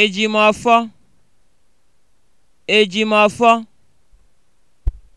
ejimọfọ ejimọfọ